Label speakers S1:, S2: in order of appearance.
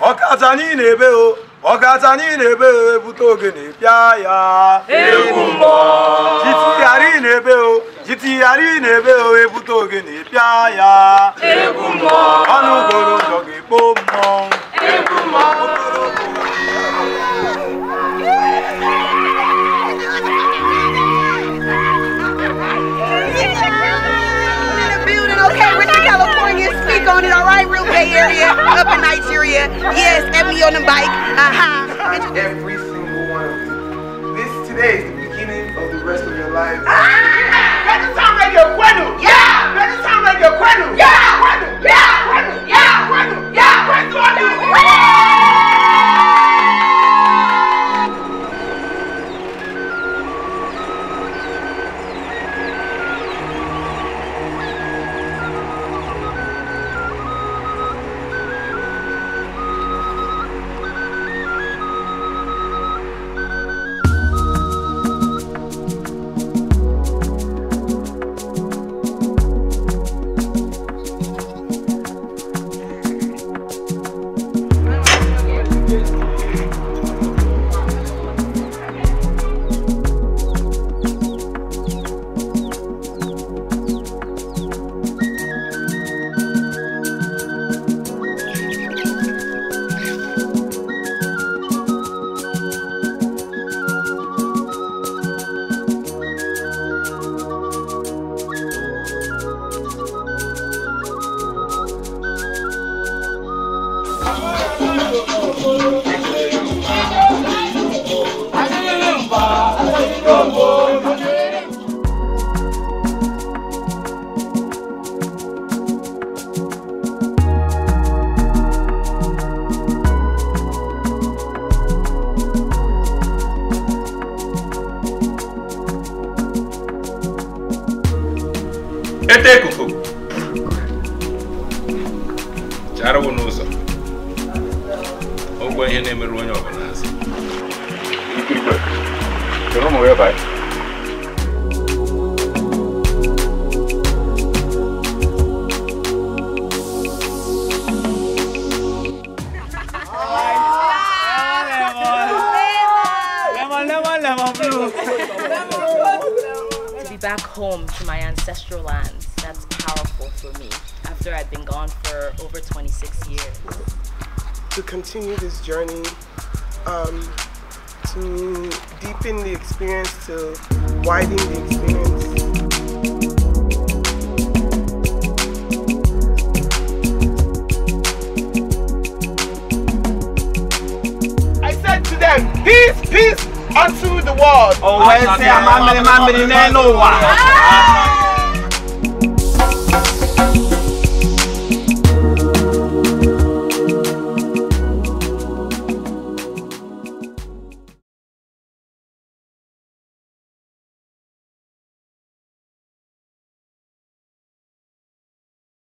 S1: ọkacha anyị na-ebe o ọkacha anyị na-ebe o ebute ogene pịa ya jitighara ị na-ebe o jitighara ị na-ebe o ebute ogene pịa ya ọnụ Bay Area, up in Nigeria. Yes, and me on the bike. Uh-huh. Every single one of you. This today is the beginning of the rest of your life. Ah! Kete ekuku charawụ n'ụzọ ụgwọ ihe na-emerụ onye ọ bụla back home to my ancestral lands. That's powerful for me after I've been gone for over 26 years. To continue this journey, um, to deepen the experience, to widen the experience. Peace, peace, unto the world. Oh, well, say, I'm a man, I'm a man,